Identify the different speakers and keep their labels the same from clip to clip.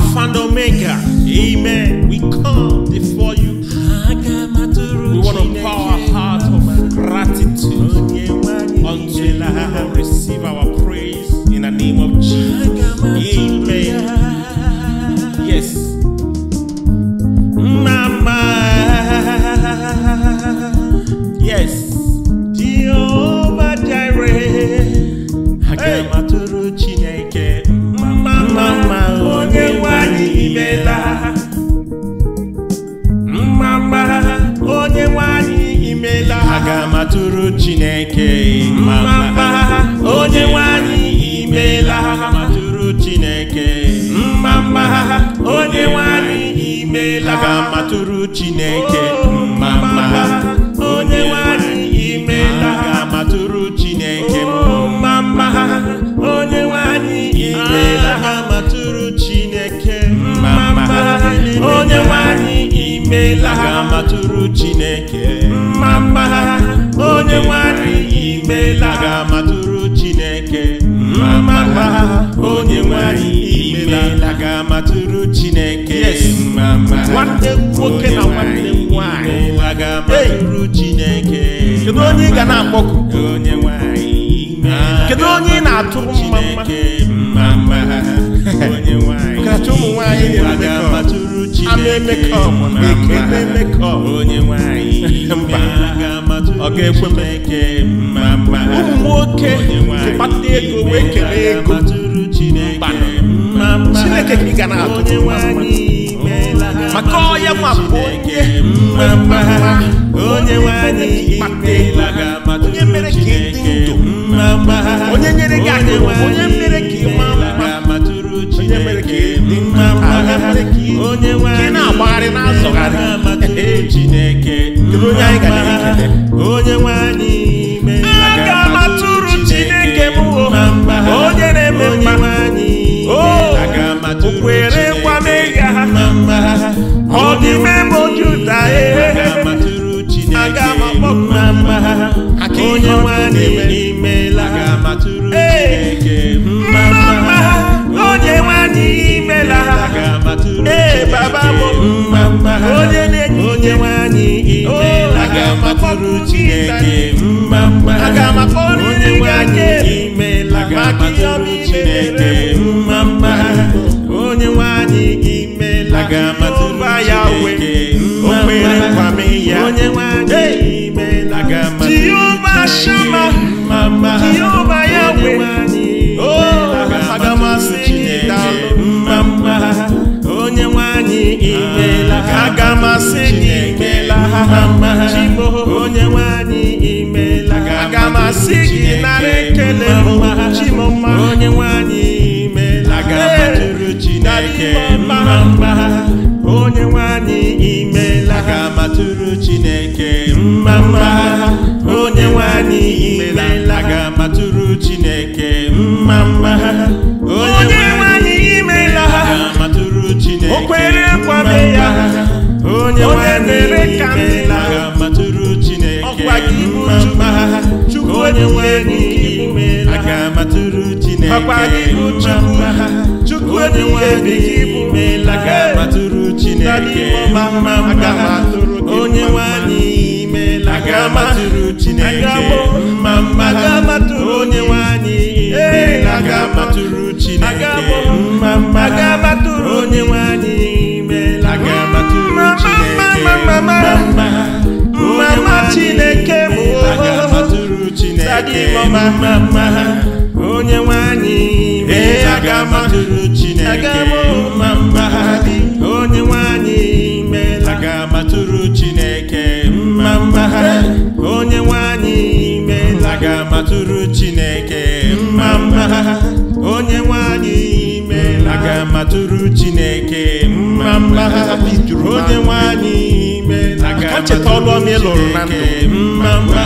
Speaker 1: Alpha and Omega. Amen. We come before you. We want to pour our heart of gratitude until we receive our matụrụ mma onye nwanyị imela ha matụrụ Chineke mma ha onye nwanyị imela ha matụrụ Chineke mma onye nwanyị imela ha matụrụ Chineke oh, mma onye nwanyị imela ha matụrụ Chineke oh, mma onye nwanyị imela ha matụrụ Chineke onye nwanyị imela ga-amatụrụ Chineke mma onye nwanyị imela ga-amatụrụ Chineke nwanne nwoke na nwanne nwanyị Chineke kedu onye ị ga na-akpọkụ onye nwanyị kedu onye ị na mma mma kacha ụmụ nwanyị na-emekọ ga-ekwe m eke mma mma nwoke kpata ego wee ego chineke ka ị ga na-atụ maka onye nwa bụ onye mma mma onye nwanyị kpata ego onye mere ka ị dị ndụ onye nyere gị aka onye mere ka ị mma onye mere ka ị onye na-agbagharị na-azọgharị chineke onye anyị ga na onye nwe anyị aga onye na-eme mma ha oh, ọ aga onye anyị Chineke aga m akpọrọ onye ga-aga imela maka ihe ọma chineke mma mma onye nwanyị gị imela ụba ya uwe o kwere nkwa m ya onye ime nwanyị imela ji ụba shama mma mma onye nwanyị imela aga matụrụ chineke mma mma onye nwanyị imela matụrụ chineke o kwere nkwame ya onye nwanyị imela matụrụ chineke mma mma onye nwanyị imela aga matụrụ chineke mma mma onye nwe ime laga matụrụ chineke mma mma onye ga matụrụ chineke mma mma onye nwanyị ga matụrụ chineke mma mma onye nwanyị meela aga matụrụ chineke mma mma chineke bụ aga matụrụ chineke mma mma onye nwanyị meela aga chineke mma mma onye nwanyị imela aga amatụrụ chineke mma mma onye nwanyị imela aga amatụrụ chineke mma mma onye nwanyị imela aga amatụrụ chineke mma mma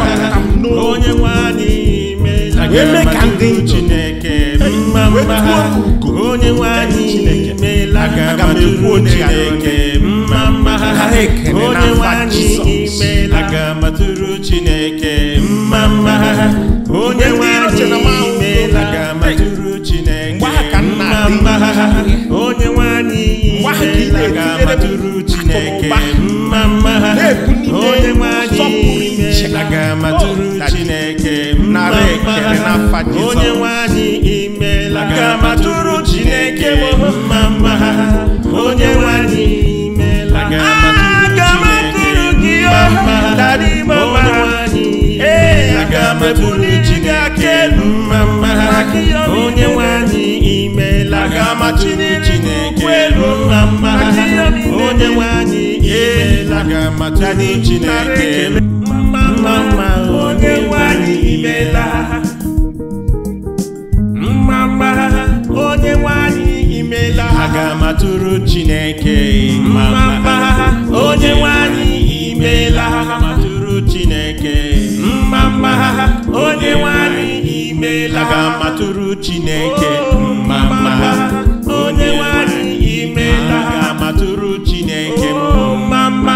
Speaker 1: onye nwanyị imela aga amatụrụ chineke mma mma onye nwanyị imeela aga matụrụ chineke mma mma onye nwanyị imeela chineke mma mma onye nwanyị imeela ga matụrụ chineke mma mma onye nwanyị imeela ga matụrụ chineke mma mma onye nwanyị imeela ga chineke mma mma onye nwanyị ebuli chi gị aka elu mma onye nwanyị imela gamachiri chineke elu mma onye nwanyị imela gamachiri chineke elu mma onye nwanyị imela mma mma onye nwanyị imela aga matụrụ chineke mma mma onye nwanyị imela aga matụrụ chineke mma onye nwanyị imela aga matụrụ chineke mma mma onye nwanyị imela aga matụrụ chineke mma mma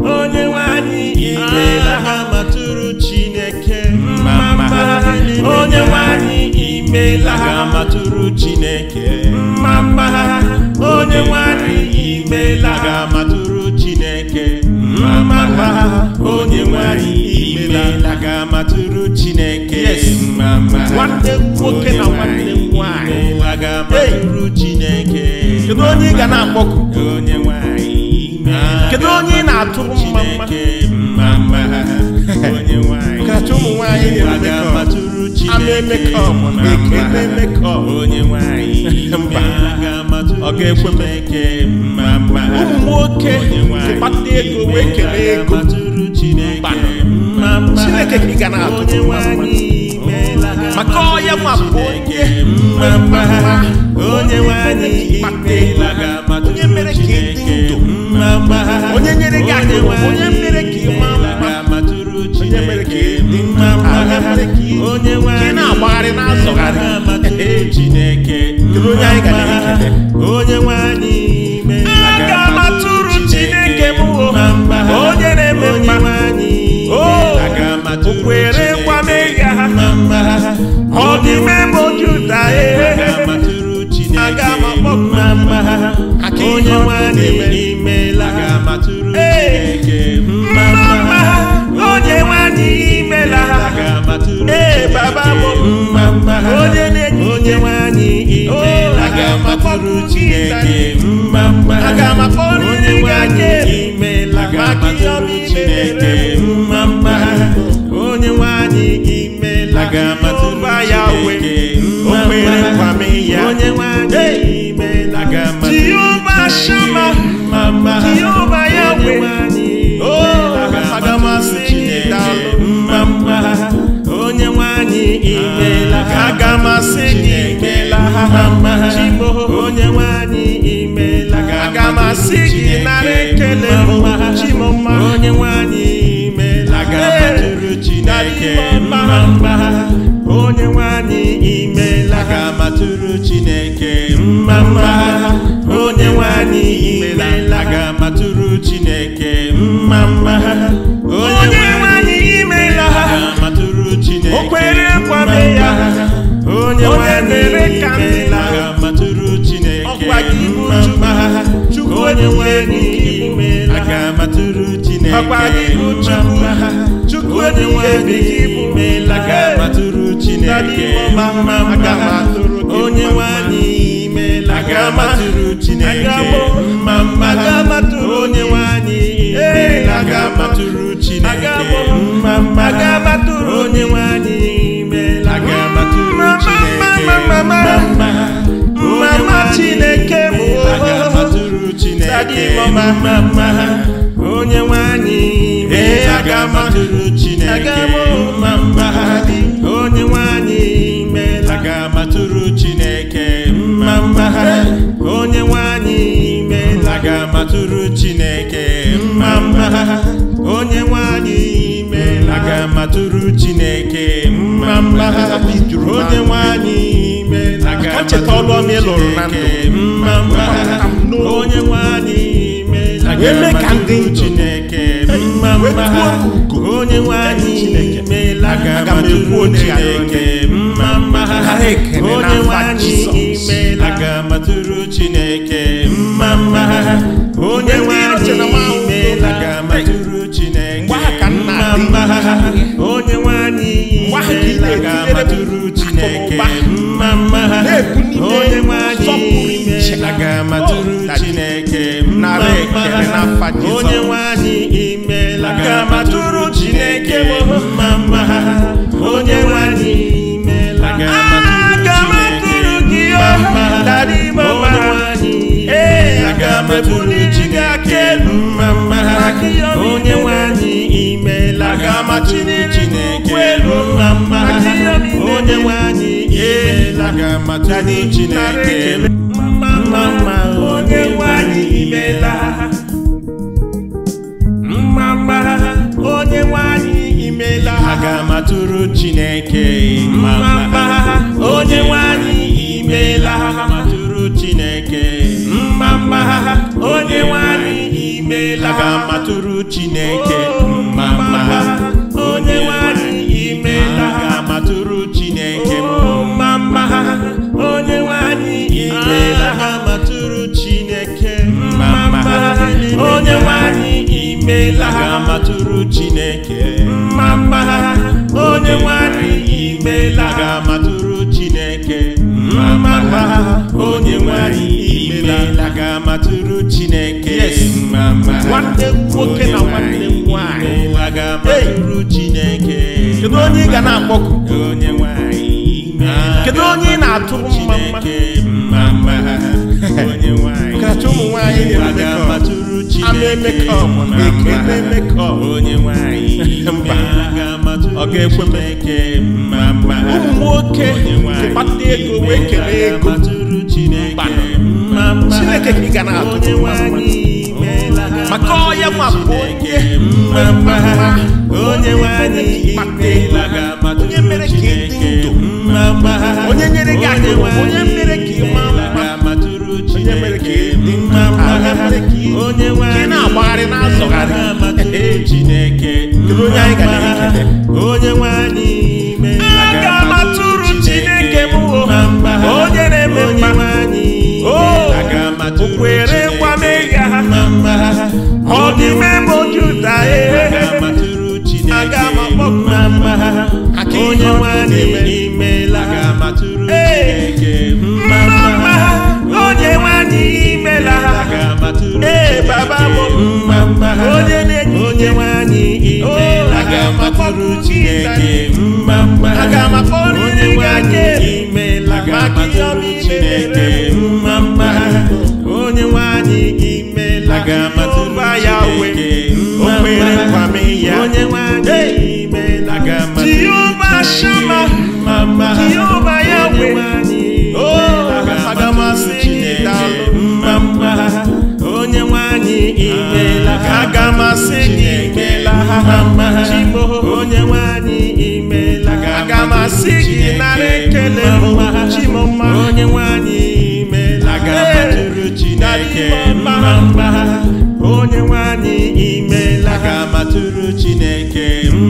Speaker 1: onye nwanyị imela aga matụrụ chineke mma mma onye nwanyị imela aga matụrụ chineke mma mma onye nwanyị imela aga matụrụ chineke mma mma ha onye nwanyị imela aga matụrụ chineke mama nwanne nwoke na nwanne
Speaker 2: nwanyị
Speaker 1: aga chineke kedu onye ị ga na-akpọku onye nwanyị kedu onye ị na-atụrụ mma kacha ụmụ nwanyị na-emekọ onye nwanyị ọ ga-ekwe m eke ụmụ nwoke kpata ego wee kere ego chineke ka ị ga na maka nwa onye mere ka ndụ onye nyere gị aka onye mere ka ị onye mere ka ị onye na-agbagharị na-azọgharị onye anyị ga na-ekele werekwa mmehie ha ọ dị Juda aga m akpọku na mma ha onye nwanyị imela ee onye nwanyị ee baba bụ onye aga Chineke mma aga onye nwanyị mma onye nwe anyị chineke Mma mma onye nwanyị imela aga matụrụ chineke mma mma onye nwanyị imela aga matụrụ chineke mma mma onye nwanyị imela aga matụrụ chineke o kwere nkwame ya onye nwanyị imela aga matụrụ chineke mma mma Chukwu onye nwanyị imela aga matụrụ chineke mma mma onye nwe n'ime lagatụrụ Chineke onye onye onye Chineke onye nwanyị
Speaker 2: ee
Speaker 1: aga m ma mma ha dị onye nwanyị meela aga m atụrụ chineke mma mma ha onye nwanyị meela aga m atụrụ chineke mma mma ha onye nwanyị meela aga m atụrụ chineke mma mma ha onye nwanyị meela aga m atụrụ e chineke mma mma ha onye nwanyị meela aga m atụrụ chineke aga m ekwu Chineke mma mma ha onye nwanyị imeela aga m atụrụ Chineke mma mma ha onye nwanyị imeela aga m atụrụ Chineke mma mma ha onye nwanyị imeela aga m atụrụ Chineke mma mma ha onye nwanyị imeela aga m atụrụ Chineke mma mma ha onye nwanyị imeela aga m atụrụ Chineke mma imela gama chineke welu na mma onye nwe anyị imela gama chineke mma mma onye nwe anyị imela mma mma onye nwe anyị imela aga matụrụ chineke mma mma onye nwe anyị imela matụrụ chineke mma mma onye nwe anyị imela aga matụrụ chineke oh, mma ha onye nwanyị imela ha matụrụ Chineke mma mma ha onye nwanyị imela ha matụrụ Chineke mma mma ha onye nwanyị imela ha matụrụ Chineke mma mma ha onye nwanyị imela ha matụrụ Chineke mma mma ha onye nwanyị imela ha matụrụ Chineke mma mma ha nwanne nwoke na nwanne Ah, kedu onye ị ga na-akpọku kedu onye ị na-atụrụ mma mma kacha ụmụ ama ekele ụmụ nwoke kpata ego wee kelee ego chineke ka ị ga na-atụrụ maka ọya nwabụ onye mma mma onye nwanyị anyị ikpeela onye mere ka ị dị ndụ onye nyere gị aka onye mere ka ị maa mma onye mere ka ị dị mma onye nwe na-agbagharị na-azọgharị Chineke kedu onye anyị gara ikele onye nwanyị anyị aga onye na-eme mma o oh, onye nwanyị imela aga matụrụ Chineke mma mma onye nwanyị imela baba m mma mma onye na-enye onye nwanyị imela aga matụrụ Chineke mma mma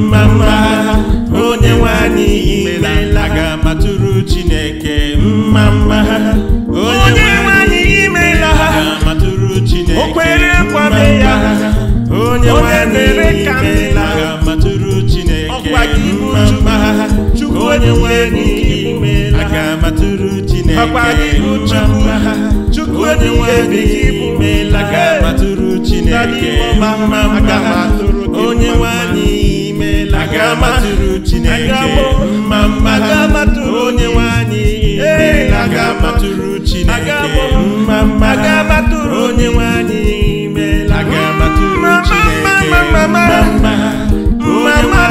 Speaker 1: mma mma onye nwanyị imela aga matụrụ chineke mma mma
Speaker 3: onye nwanyị imela aga
Speaker 1: matụrụ chineke okpere kwame ya onye nwanyị imela aga matụrụ chineke mma mma onye nwanyị imela aga matụrụ chineke mma mma onye nwanyị imela aga matụrụ chineke mma mma onye nwanyị aga amatụrụ chineke mma mma onye nwanyị ga matụrụ chineke mma mma onye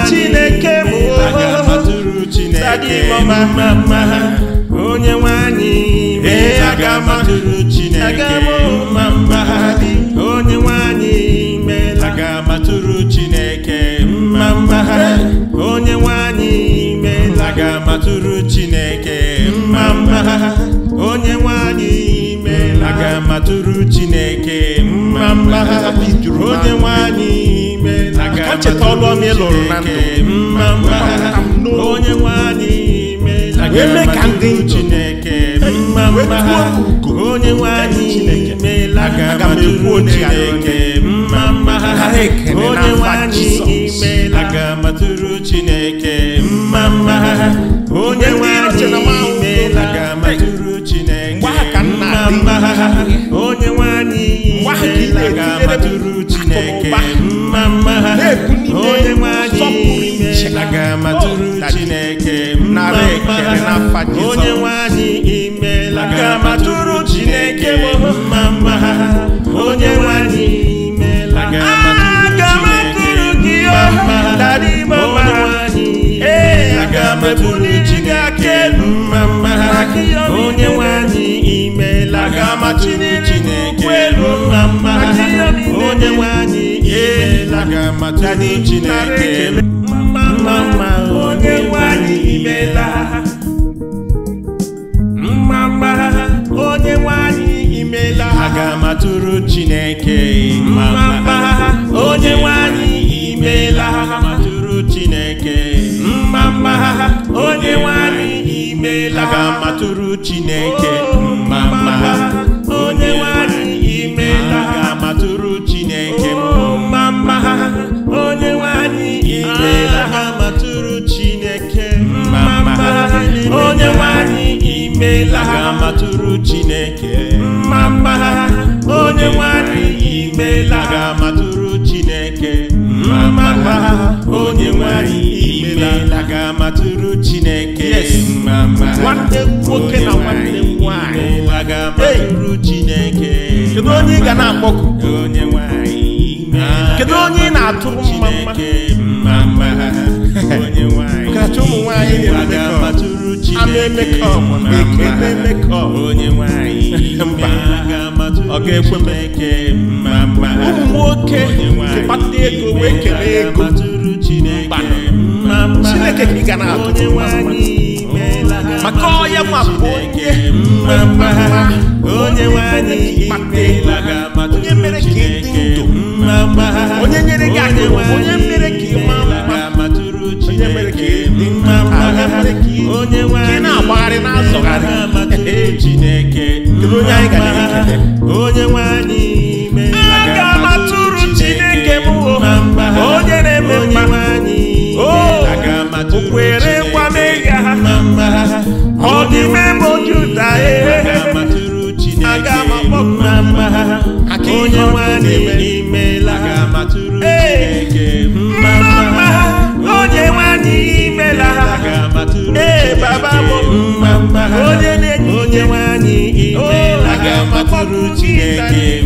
Speaker 1: chineke mma onye chineke mma mma tụrụ chineke mma mma onye nwanyị ime aka cheta ọlụọ m ịlụrụ na mma mma onye nwanyị ime wee mee ka ndị chineke mma mma onye nwanyị ime aga m chineke mma mma onye nwanyị ime aga m chineke mma mma onye nwanyị ime aga m chineke mma mma na-etiri akụnụba na-ekwu n'ime mma iche ha. Onye n'afa Jizọs ebuli chidi aka elu mma mma onye nwanyị imeela ga-amachiri onye nwe anyị imeela ka anyị Chineke mma mma onye nwe anyị imeela mma mma onye nwe anyị imeela aga m atụrụ Chineke mma mma onye nwe anyị imeela amatụrụ Chineke mma oh, mma onye nwe anyị imeela aga m atụrụ Chineke mma mma onye nwanyị imela ga matụrụ chineke nwanne nwoke na nwanne
Speaker 2: nwanyị
Speaker 1: ga matụrụ chineke kedu onye ị ga na-akpọku onye nwanyị kedu onye ị na-atụrụ mma mma onye nwanyị kacha ụmụ nwanyị na-amatụrụ chineke onye nwanyị ọ ga-ekwe m ụmụ nwoke kpata ego wee kere ego chineke ka ị ga na-atụtụ maka ọya onye mere ka ị ndụ onye nyere gị aka onye mere ka ị onye mere na-agbagharị na onye were werekwa mehie ọ dị bụ Juda aga m akpọku na mma ha onye nwanyị imela ha onye nwanyị imela ha ee baba bụ mma onye nwanyị imela ha akpọku Chineke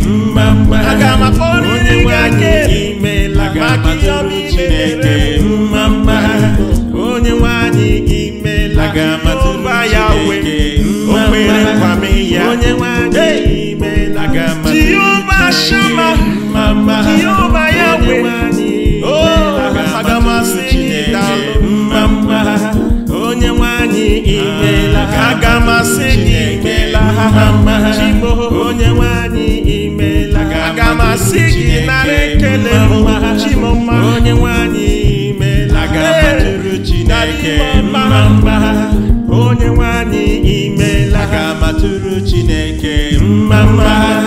Speaker 1: tụrụ Chineke mma mma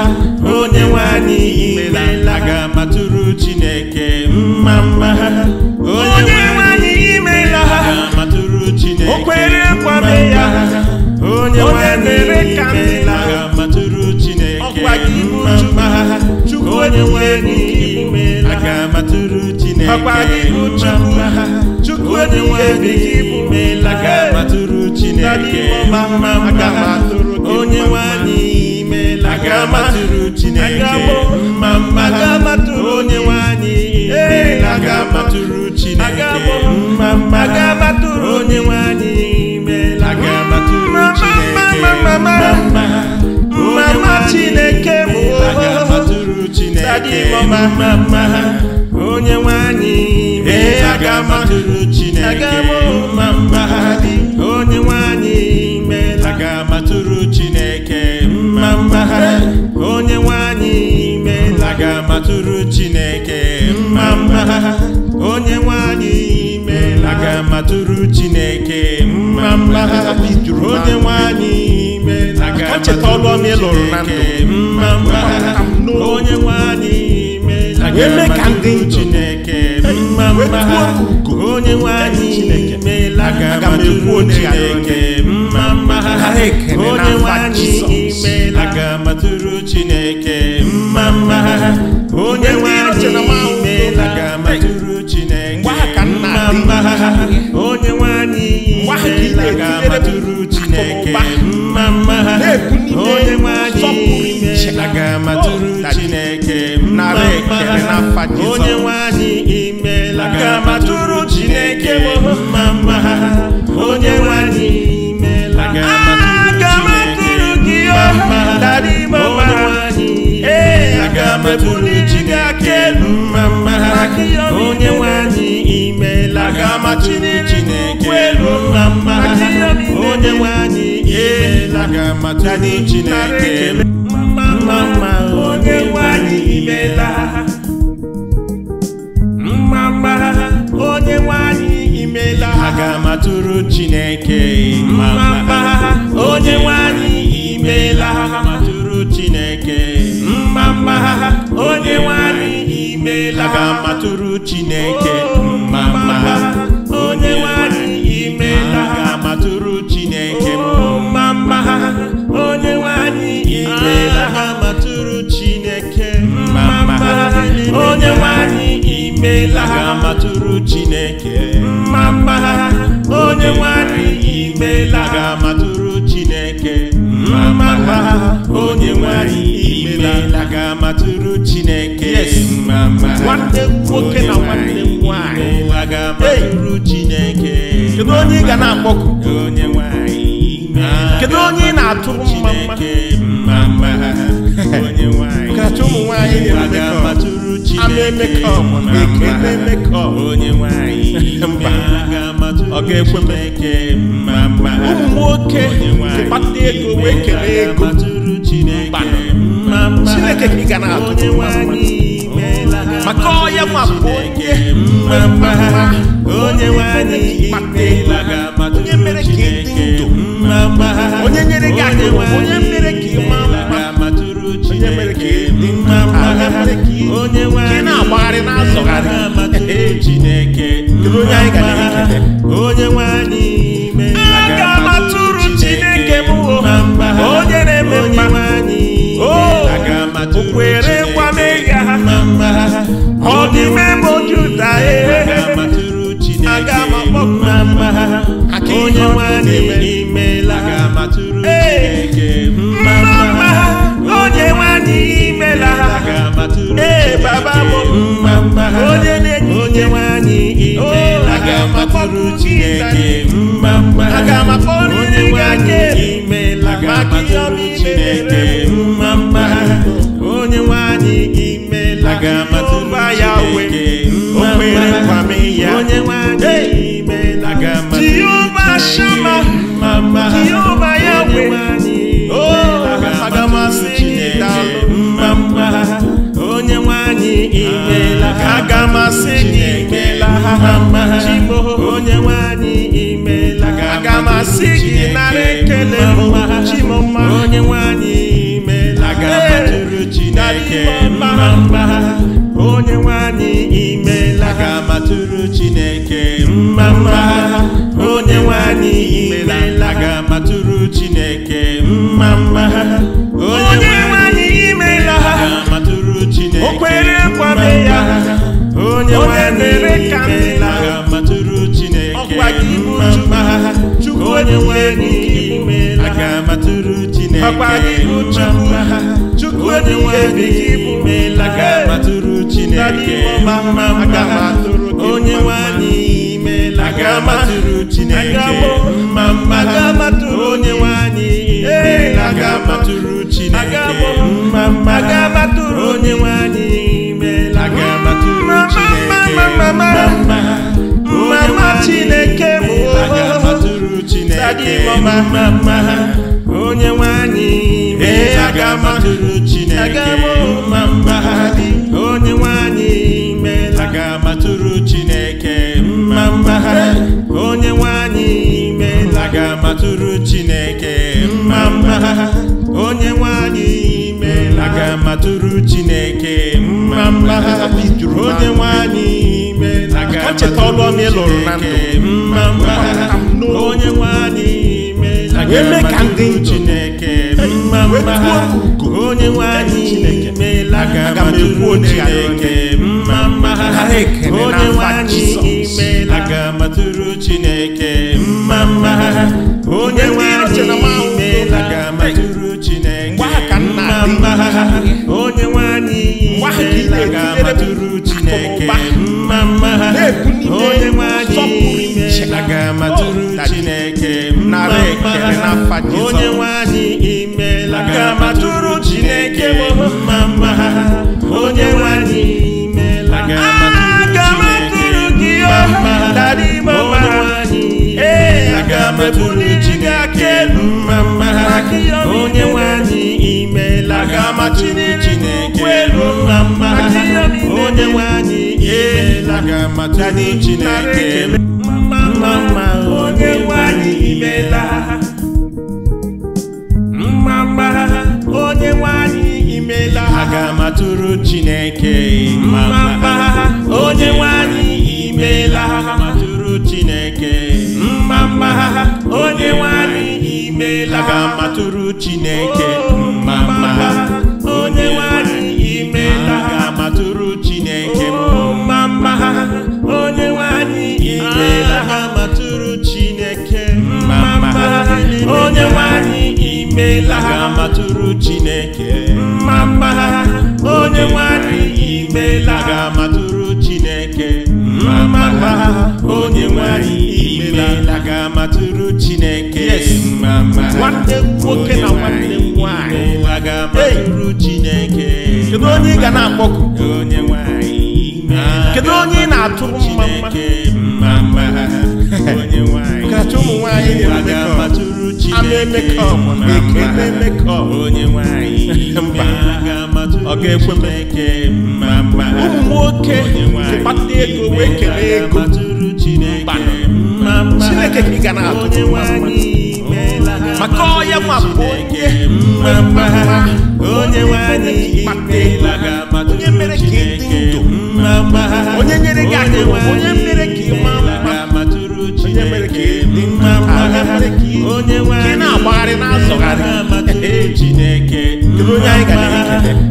Speaker 1: onye nwanyị imela aga matụrụ Chineke mma mma onye nwanyị imela matụrụ Chineke kwere ya onye nwanyị imela matụrụ Chineke mma mma onye nwanyị imela aga matụrụ mma mma chukwu onye nwanyị imela aga onye nwanyị imela aka matụrụ chineke mma mma onye nwanyị imela aka matụrụ chineke mma mma onye nwanyị imela aka matụrụ chineke mma oh, mma onye nwanyị imela aka matụrụ chineke mma mma onye nwanyị imela aka matụrụ chineke mma mma matụrụ Chineke mma onye nwe anyị meela aga matụrụ Chineke mma mma onye nwe anyị meela aga matụrụ Chineke mma mma onye nwe anyị meela aga matụrụ Chineke mma mma onye nwe anyị meela aga matụrụ Chineke mma mma onye nwe anyị meela aga matụrụ n'afa Jizọs onye nwe imela aga m Chineke m mma mma onye nwe anyị imela aga m atụrụ gị ọma darịma mma ee aga m atụrụ Chineke aka elu mma mma onye nwe imela aga m Chineke elu mma mma onye nwe anyị imela aga m atụrụ Chineke mma mma onye nwe imela imela ha ga-amatụrụ Chineke mma onye nwanyị imela ha matụrụ Chineke mma onye nwanyị imela oh, oh, ha ga-amatụrụ Chineke mma onye nwanyị imela ha ga-amatụrụ Chineke mma onye nwanyị imela ha matụrụ Chineke onye nwanyị imela ha ga-amatụrụ Chineke mma onye nwanyị imela ga-amatụrụ Chineke mma ha onye nwanyị imela ga-amatụrụ Chineke mma mma nwanne nwoke nwanyị ga Chineke kedu onye ị ga na-akpọku onye nwanyị ah. kedu onye ị na-atụrụ mma mma mma mma ha onye nwanyị ka ụmụ nwanyị Chineke onye nwanyị ọ ga-ekwe m ụmụ nwoke
Speaker 4: kpata ego
Speaker 1: wee kelee ego mba Chineke ka ị ga na-atụ maka ọya nwa bụ onye onye nwanyị kpata ego onye mere ka ị dị ndụ onye nyere gị akụ onye mere ka ị maa onye na-agbagharị na chineke onye anyị gara onye onye nwanyị imela ga-amatụrụ Chineke mma mma onye nwanyị imela ga-amatụrụ Chineke mma mma onye nwanyị imela ga Chineke mma mma onye nwanyị imela ga o kwere ya onye nwanyị imela ga Chineke mma mma onye nwanyị onye nwanyị imela aga matụrụ Chineke mma mma onye nwanyị imela aga Chineke mma mma onye nwanyị imela aga matụrụ Chineke mma mma onye nwanyị Chineke mma mma aga m atụrụ Chineke aga m mma mma ha dị onye nwanyị imela. aga m atụrụ Chineke mma mma ha onye nwanyị imela. aga m atụrụ Chineke mma mma ha onye nwanyị imela. aga m atụrụ Chineke mma mma ha onye nwanyị imela. aga m atụrụ Chineke mma mma ha onye nwanyị imela. aga m atụrụ Chineke onye nwanyị imela agamatu chineke mma mma ha onye nwanyị imela agamatụrụ chineke mma mma ha onye nwanyị oh, chineke mma mma ha onye nwanyị imela agamatụrụ chineke mma mma ha onye nwanyị chineke mma mma ha onye aga matụrụ Chineke mma mma onye nwanyị imela aga matụrụ gị mma dara ime ọma ee aga matụrụ Chineke aka elu mma mma onye nwanyị imela aga matụrụ Chineke elu mma mma onye nwanyị imela aga matụrụ Chineke mma mma onye nwanyị imela mma onye nwanyị imela aga m atụrụ Chineke mma onye nwanyị imela aga m Chineke mma mma onye nwanyị imela aga m atụrụ Chineke oh, mma mma onye nwanyị imela aga m atụrụ Chineke oh, mma mma onye nwanyị imela aga m atụrụ Chineke mma mma onye nwanyị imela ha matụrụ Chineke mma mma ha onye nwanyị imela ha matụrụ Chineke mma mma ha onye nwanyị imela ha matụrụ Chineke mma mma nwanne nwoke na nwanne nwanyị imeela ha matụrụ Chineke kedu onye ị ga na-akpọkụ onye nwanyị kedu onye ị na-atụrụ mma mma mma onye nwanyị nwaanyị ọ ga-ekwe m ụmụ nwoke kpata ego wee kelee ego chineke ka ị ga na-atụ maka ọya nwa bụ onye onye mere ka dị ndụ onye nyere gị onye onye anyị ga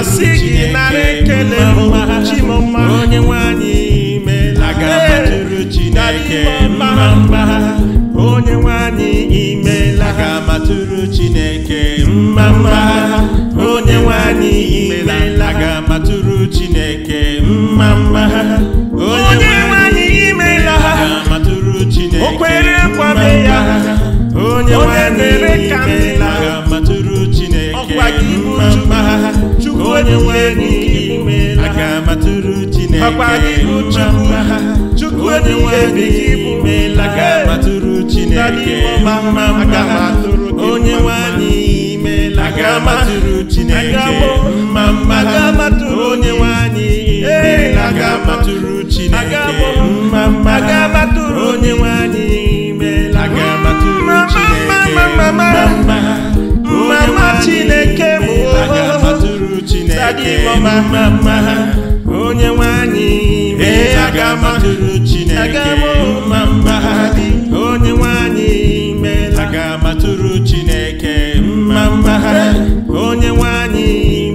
Speaker 1: asị gị nara ekele chimọma onye nwanyị imela ga-amatụrụ Chineke mma mma onye nwanyị imela ga-amatụrụ Chineke mma mma onye nwanyị imela ga-amatụrụ Chineke mma mma onye nwanyị imela ga-amatụrụ Chineke o kwere nkwame ya onye nwanyị imela mma onye nwanyị imela aga matụrụ Chineke mma mma onye nwanyị imela aga matụrụ Chineke mma mma onye nwanyị imela aga matụrụ Chineke onye nwanyị Chineke adịghị mma mma mma ha onye nwanyị ee aga matụrụ chineke mma mma ha dị onye nwanyị meela aga matụrụ chineke mma mma ha onye nwanyị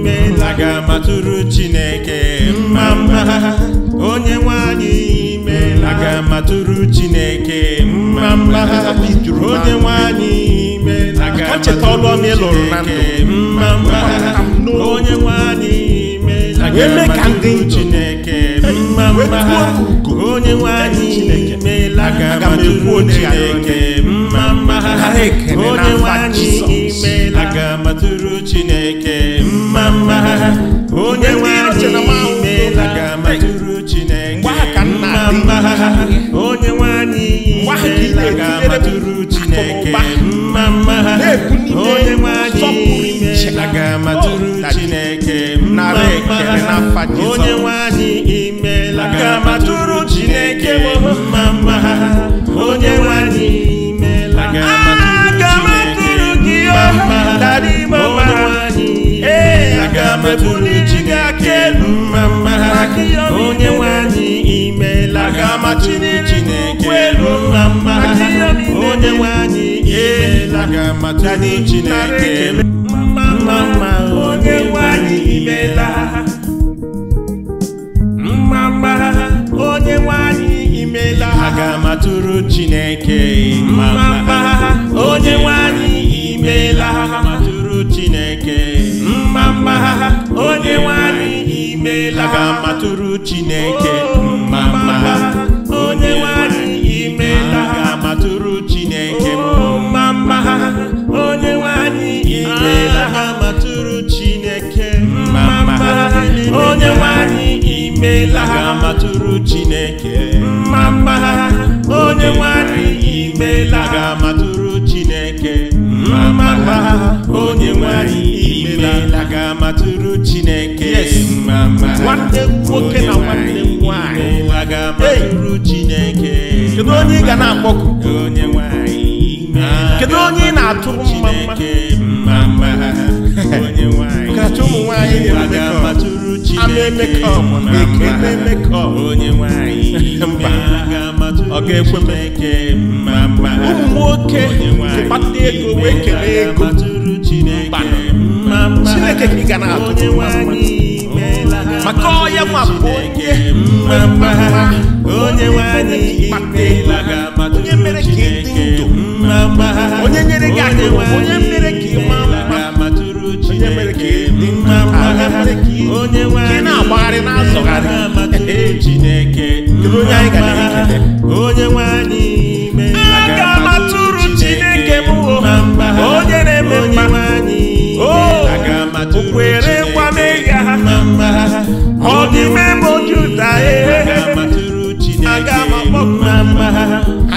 Speaker 1: meela aga matụrụ chineke mma mma ha onye nwanyị meela aga matụrụ chineke mma mma ha onye nwanyị meela aga matụrụ chineke mma mma onye nwe anyị eme ka ndị Chineke mma mma ha onye nwe anyị meela ka ekwu Chineke mma mma ha onye nwe anyị meela ka matụrụ Chineke mma mma ha onye nwe anyị meela ka matụrụ Chineke mma mma ha onye nwe anyị meela ka matụrụ Chineke mma mma ha onye nwe anyị meela ka matụrụ onye nwe imela ka ma tụrụ Chineke mma mma onye nwe anyị imela aga m atụrụ gị ọma dara ime ee aga chi mma mma onye nwe anyị imela aga m atụrụ Chineke elu mma mma onye nwe anyị imela aga m Chineke elu ha ga-amatụrụ Chineke mma onye nwanyị imeela ha matụrụ Chineke mma onye nwanyị imeela ha ga-amatụrụ Chineke mma onye nwanyị imeela ha ga-amatụrụ Chineke mma onye nwanyị imeela ha matụrụ Chineke mma onye nwanyị imeela ha ga-amatụrụ Chineke onye nwanyị imela a ga-amatụrụ Chineke mma onye nwanyị imela ga-amatụrụ Chineke mma nwanne nwoke na nwanne
Speaker 2: nwanyị
Speaker 1: ga-amatụrụ Chineke kedu onye ị ga na-akpọku onye nwanyị kedu onye ị na-atụrụ mma kacha ụmụ nwanyị na-emekọ ama emekọ onye nwanyị ga me m eke ụmụ nwoke zikpata ego wee kelee ego mba chineke ka ị ga na-atụ maka ọya nwa bụ onye kpata ego onye mere ka ị dị onye nyere gị onye mere ka ị onye mere ka ị onye mere ka ị na-agbagharị na-azọgharị chineke onye nwe anyị aga m chineke onye na-eme ha imela mma mma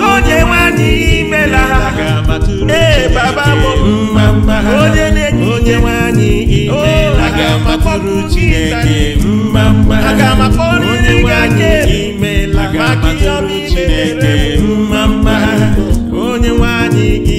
Speaker 1: onye nwe imela ee baba mma mma onye na-enye onye aga m akpọrọ Chineke mma mma aga m akpọrọ onye nwaanyị imela maka ihe ọma Chineke mma mma onye nwaanyị gị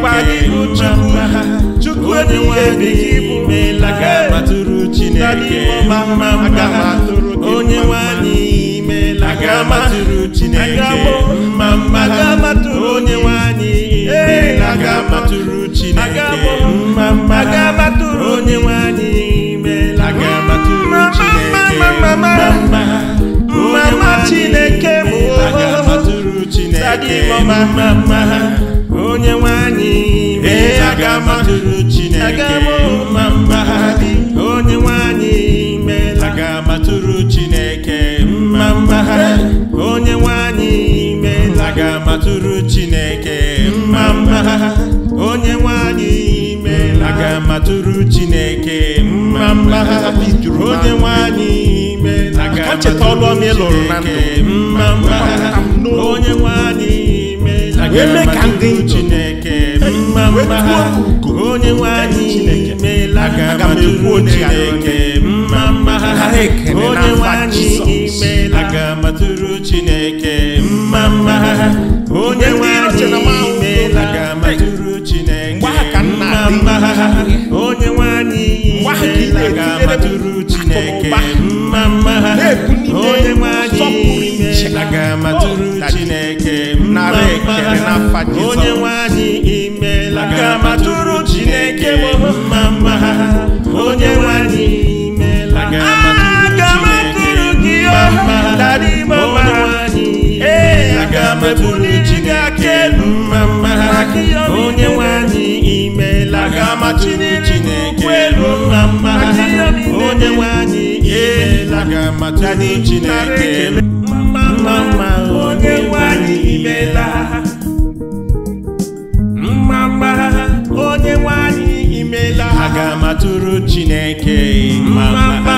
Speaker 1: dịkwa n'ihu chukwu atụrụ chineke onye nwanyị imela aga amatụrụ chineke mma mma onye nwanyị imela aga amatụrụ chineke mma mma onye nwanyị imela aga amatụrụ chineke mma mma chineke mụ sadị mma mma onye nwe anyị mee aga m atụrụ Chineke mma mma onye nwe anyị meela aga m atụrụ Chineke mma mma onye nwe anyị meela aga m atụrụ Chineke mma mma onye nwe anyị meela aga m atụrụ Chineke mma mma onye nwe anyị meela aga m atụrụ Chineke mma mma onye nwe eme ndị Chineke onye nwe anyị imeela aga m ekwu Chineke mma mma ha onye nwe imeela chineke na mma onye nwe anyị imeela anyị chineke onye nwe anyị imeela mma mma onye nwe anyị imeela aga matụrụ chineke mma mma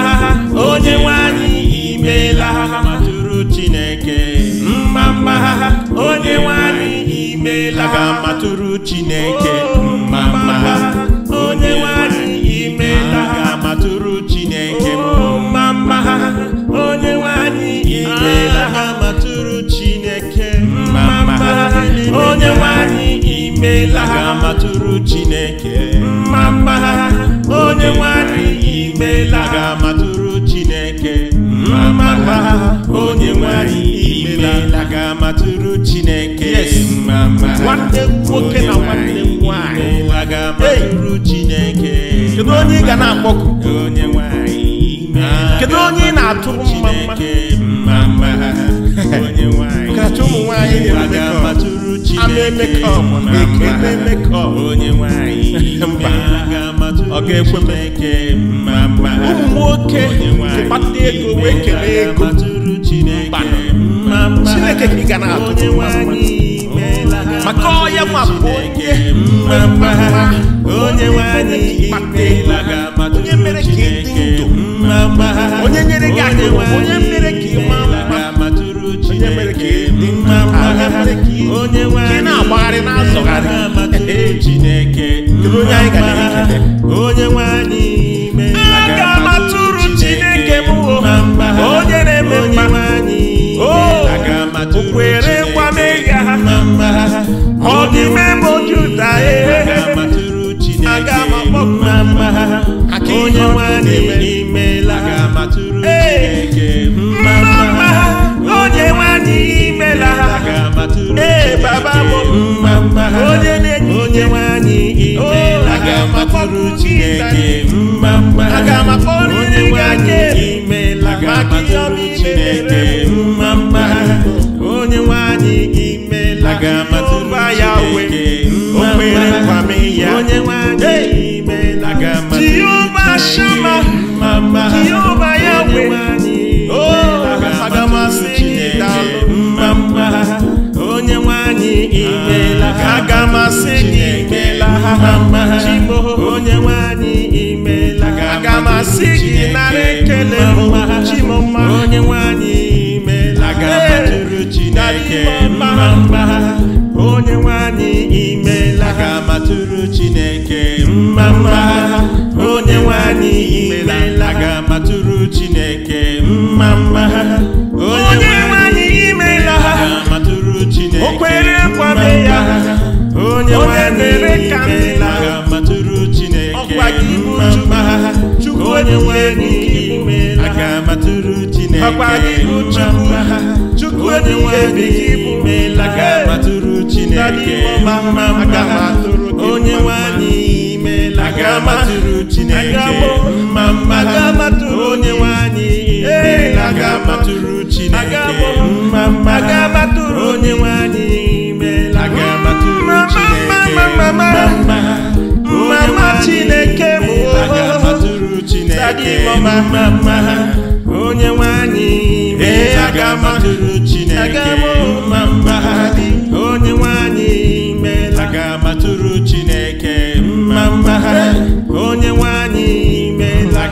Speaker 1: onye nwe anyị imeela chineke mma mma onye nwe anyị imeela aga matụrụ chineke mma mma onye nwanyị imela ha mma onye ha nwoke na nwanne kedu onye ị ga na-akpọku kedu onye ị na-atụrụ mma mma ọ ga-ekwe ụmụ nwoke kpata ego wee kelee ego chineke ka ị ga na-atụrụ maka onye nwapụ onye mmemme onye nwe anyị onye mere ka ị dị ndụ onye nyere gị aka onye mere ka ị maa mma onye mere ka ị onye mere ka na-agbagharị na-azọgharị Chineke onye anyị onye anyị aga onye na-eme ọ dị mmemme ojuta ee aga ha onye nwanne imela ee mma mma ha onye imela ha ee mma mma ha onye onye ha mma mma ha ya oh, we ah, o atụrụ chineke mma mma onye nwanyị imela aga m chineke mma mma onye nwanyị imela aga m atụrụ chineke mma onye nwanyị imela aga m chineke mma mma onye nwanyị imela chineke onye nwanyị imela aga matụrụ chineke mma mma onye nwanyị imela aga matụrụ chineke mma mma onye nwanyị imela aga matụrụ chineke mma mma mama chineke bụ mma mama onye nwanyị aga matụrụ chineke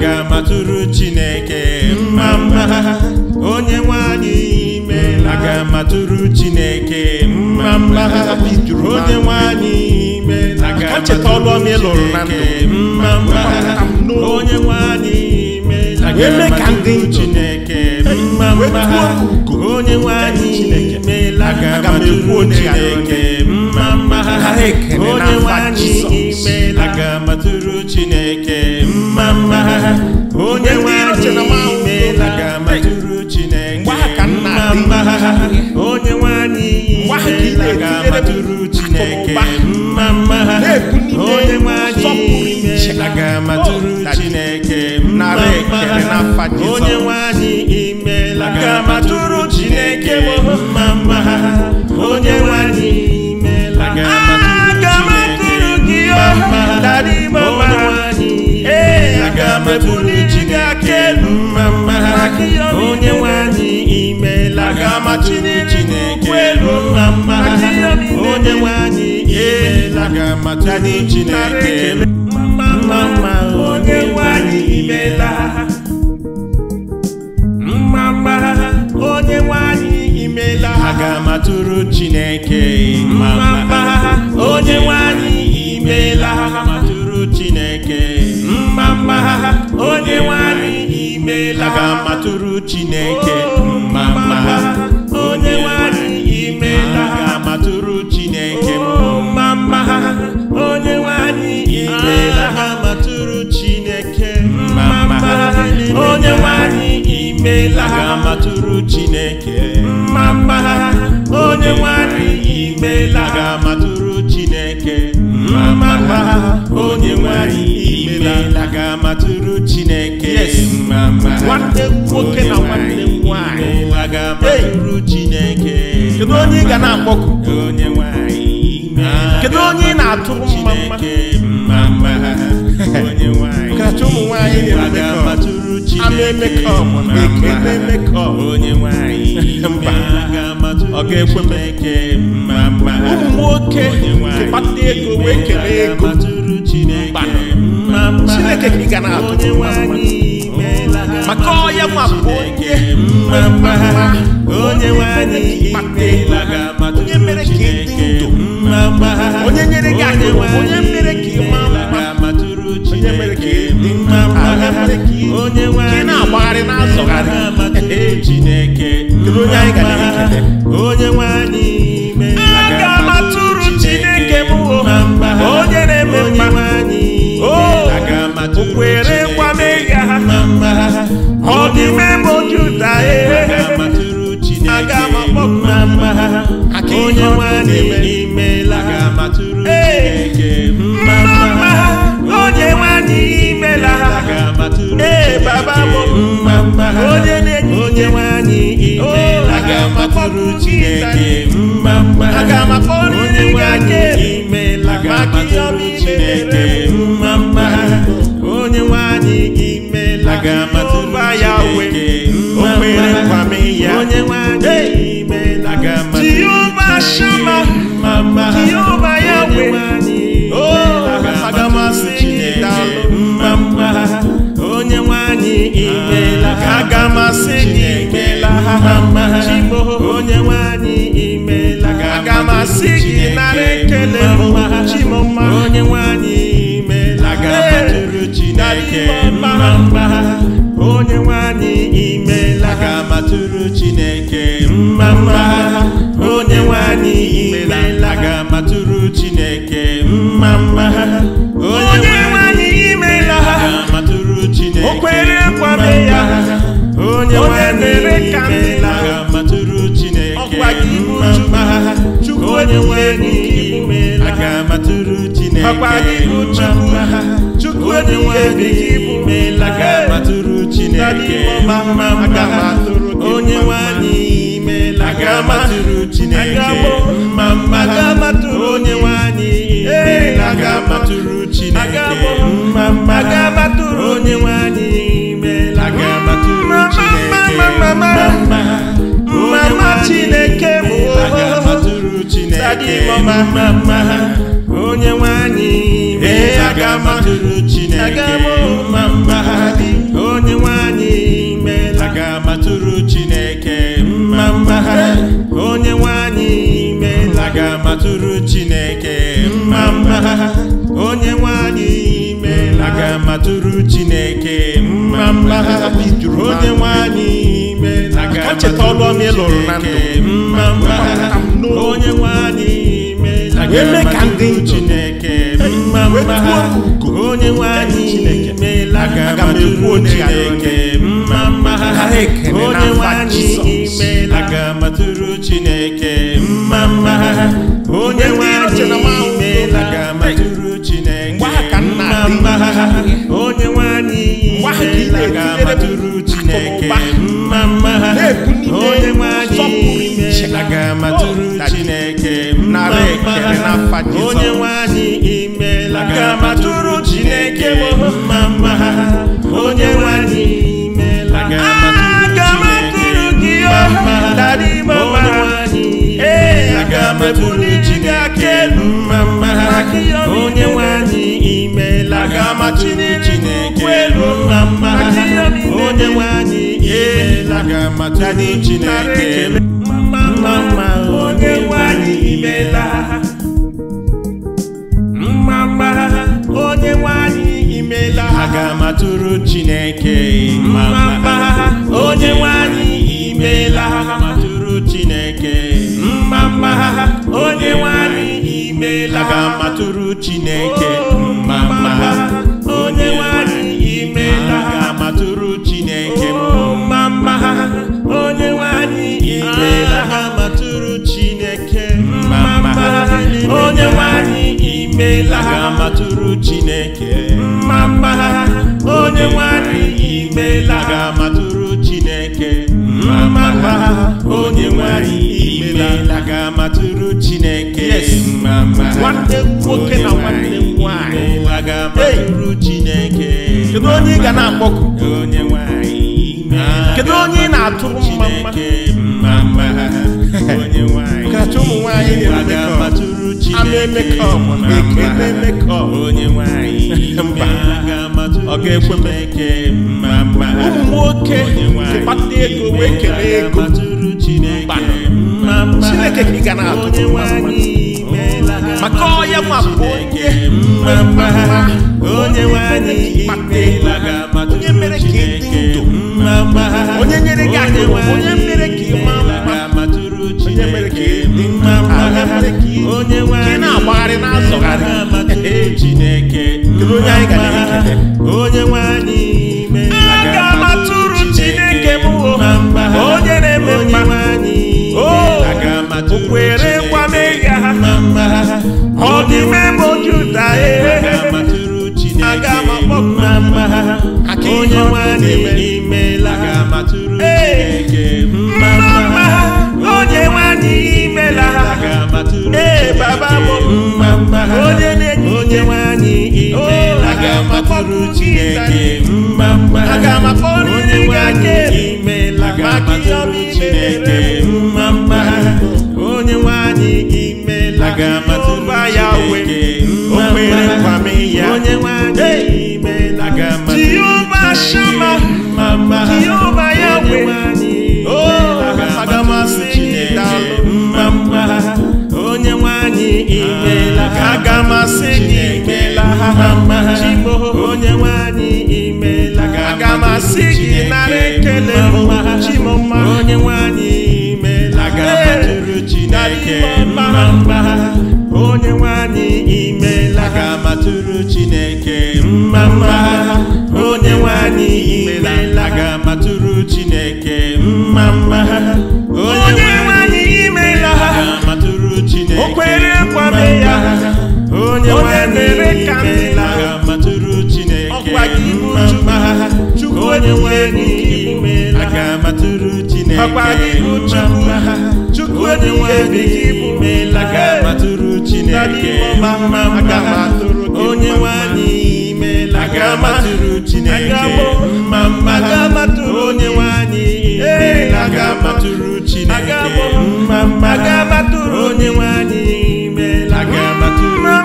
Speaker 1: aga m Chineke mma mma onye nwe anyị imeela aga m Chineke mma mma onye nwe anyị imeela aga m Chineke mma mma onye nwe anyị aga Chineke mma mma onye nwe anyị imeela aga m Chineke mma mma onye nwe anyị imeela aga m Chineke onye nwanyị imeela ga Chineke mma mma onye nwanyị imeela ga-amatụrụ oh, Chineke mma mma onye nwanyị imela ga-amatụrụ Chineke mma mma onye nwanyị imela ga-amatụrụ Chineke mma mma onye bụrụ chi gị aka elu mma onye nwanyị imela ga-amachiri chineke elu mma onye nwanyị imela ga chineke elu mma onye nwanyị imela onye nwanyị imela ha onye nwanyị imela ka matụrụ chineke mma mma onye nwanyị imela ka matụrụ chineke mma mma onye nwanyị imela ka matụrụ chineke mma mma onye nwanyị imela ka matụrụ chineke mma mma onye nwanyị imela ka matụrụ chineke mma mma onye nwanyị emeela aga matụrụ chineke nwanne nwoke na nwanne
Speaker 2: nwanyị
Speaker 1: aga matụrụ chineke kedu onye ị ga na-akpọku onye nwanyị kedu onye ị na-atụrụ mma mma onye nwanyị kacha ụmụ nwanyị na matụrụ chineke onye nwanyị ọ ga-ekwe m eke ụmụ nwoke kpata ego wee ego chineke ka ị ga na-atụ maka ọya nwa onye onye mere ka ị ndụ onye nyere gị akụ onye mere ka mma onye chineke onye anyị onye nwanyị chineke mma kwere ọ dị oju juda e. aga m na mma ha onye nwanyị imela ee mma ha onye nwanyị imela ha ee baba bụ ha onye na-enye onye nwanyị imela oh, aga Chineke aga Amen. I got my Jehovah Shammah, Mama. Jehovah Oh, I imela, aga m asị gị imela, mama imela, aga m asị gị nara ekele mma, chimoma imela, aga m ajụrụ Chineke mma matụrụ Chineke mma mma onye nwanyị imela aga matụrụ Chineke mma mma onye nwanyị imela aga matụrụ Chineke o ya onye nwanyị imela aga matụrụ Chineke mma mma onye nwanyị imela aga matụrụ Chineke mma mma chukwu imela aga matụrụ Chineke mma mma onye nwanyị imela aga matụrụ chineke mma mma onye nwanyị imela aga matụrụ chineke mma mma onye nwanyị imela aga matụrụ chineke mma mma onye nwanyị imela aga matụrụ chineke mma mma onye nwanyị imela aga matụrụ chineke matụrụ Chineke mma mma onye nwanyị meela aga matụrụ Chineke mma mma onye nwanyị meela aga matụrụ Chineke mma mma onye nwanyị meela aga matụrụ Chineke mma mma onye nwanyị meela aga matụrụ Chineke mma mma onye nwanyị imeela aga matụrụ Chineke mma mma onye nwanyị imela ga matụrụ Chineke mma onye nwanyị imela ga matụrụ Chineke mma mma ha onye nwanyị imela ga matụrụ Chineke mma mma ha onye nwanyị imela ga matụrụ Chineke mma mma ha onye nwanyị imela ga matụrụ Chineke mma mma ha onye nwanyị imela. onye nwe anyị imela welu na mma onye nwe anyị imela mma mma mma onye nwe anyị imela mma mma onye nwe anyị imela ga matụrụ Chineke mma mma onye nwe anyị ga matụrụ Chineke mma mma onye nwe anyị imeela ga matụrụ Chineke mma mma oh, onye nwanyị imeela ga matụrụ Chineke mma mma onye nwanyị imeela ga matụrụ Chineke mma mma onye nwanyị imeela ga matụrụ Chineke mma mma onye nwanyị imela. ka mma onye nwanyị ga-amatụrụ chineke mma mma nwanne nwoke na nwanne nwanyị ga-amatụrụ chineke kedu onye ị ga na-akpọkụ onye nwanyị na-atụrụ mma mma onye nwanyị kacha ụmụ nwanyị na-emekọ onye nwanyị ọ ga-ekwe m eke mma mma ụmụ nwoke kpata ego wee kelee ego chineke ka ị ga na-atụ maka nwa bụ onye mma mma onye mere ka ị dị ndụ onye nyere gị nwanyị onye mere ka ị maa mma onye mere ka ị dị mma onye na-agbagharị na-azọgharị chineke onye anyị nwe anyị
Speaker 3: ime aga m
Speaker 1: atụrụ chineke m mma onye na-eme mma okwere kwa mega ha ọ dịme m ojuta aga m eh, eh. akpọpụ eh, mma onye nwe anyị imela ee mma onye nwe anyị imela ee baba m Chineke mma mma onye nwe imela maka ihe ọma Chineke onye nwe gị imela aga m atụrụ onye imela mma mma onye aga onye imela isi gị nara ekele chimọma onye nwanyị imela mma onye nwanyị imela ga-amatụrụ Chineke mma mma onye nwanyị imela ga-amatụrụ Chineke mma mma onye nwanyị imela ga-amatụrụ Chineke kwame ya onye nwanyị onye nwe n'ime aga matụrụ onye nwanyị imela aga Chineke mma mma onye nwanyị imela aga Chineke mma mma onye nwanyị imela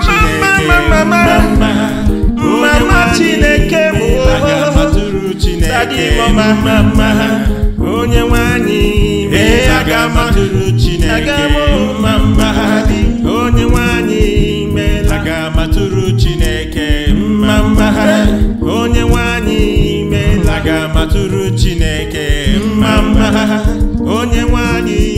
Speaker 1: Chineke dị mma mma onye nwanyị ee aga m atụrụ Chineke mma mma onye nwanyị aga atụrụ Chineke mma mma onye nwanyị meela aga m atụrụ Chineke mma mma onye nwanyị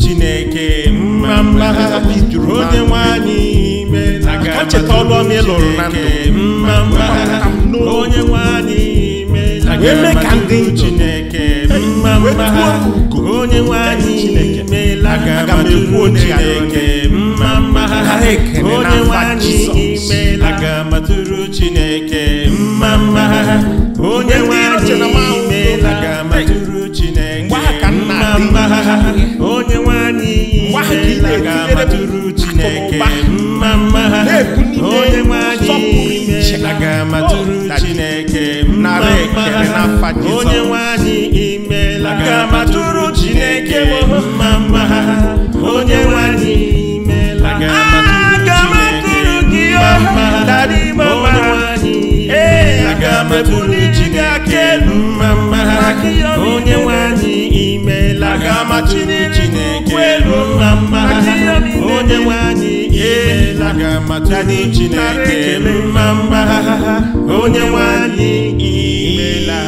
Speaker 1: Chineke mma mma onye nwanyị meela aga Chineke mma mma onye nwe anyị meela ka ndị chineke mma mma ha onye nwe anyị meela ka ndị chineke mma mma ha onye nwe anyị meela ka matụrụ chineke mma mma ha onye nwe anyị meela ka matụrụ chineke mma mma ha onye nwe anyị meela ka matụrụ chineke mma mma ha onye nwe anyị meela ka nna Chineke nara ekele n'afa Jizọs onye nwe anyị imeela chineke m atụrụ Chineke mma mma onye nwe imela! imeela aga m atụrụ gị ọha dara ime mma ee aga m ebuli ji gị aka mma mma onye nwe imela! imeela aga m atụrụ Chineke mma mma onye nwe eela ga amata anyị Chineke mma mma onye nwanyị imeela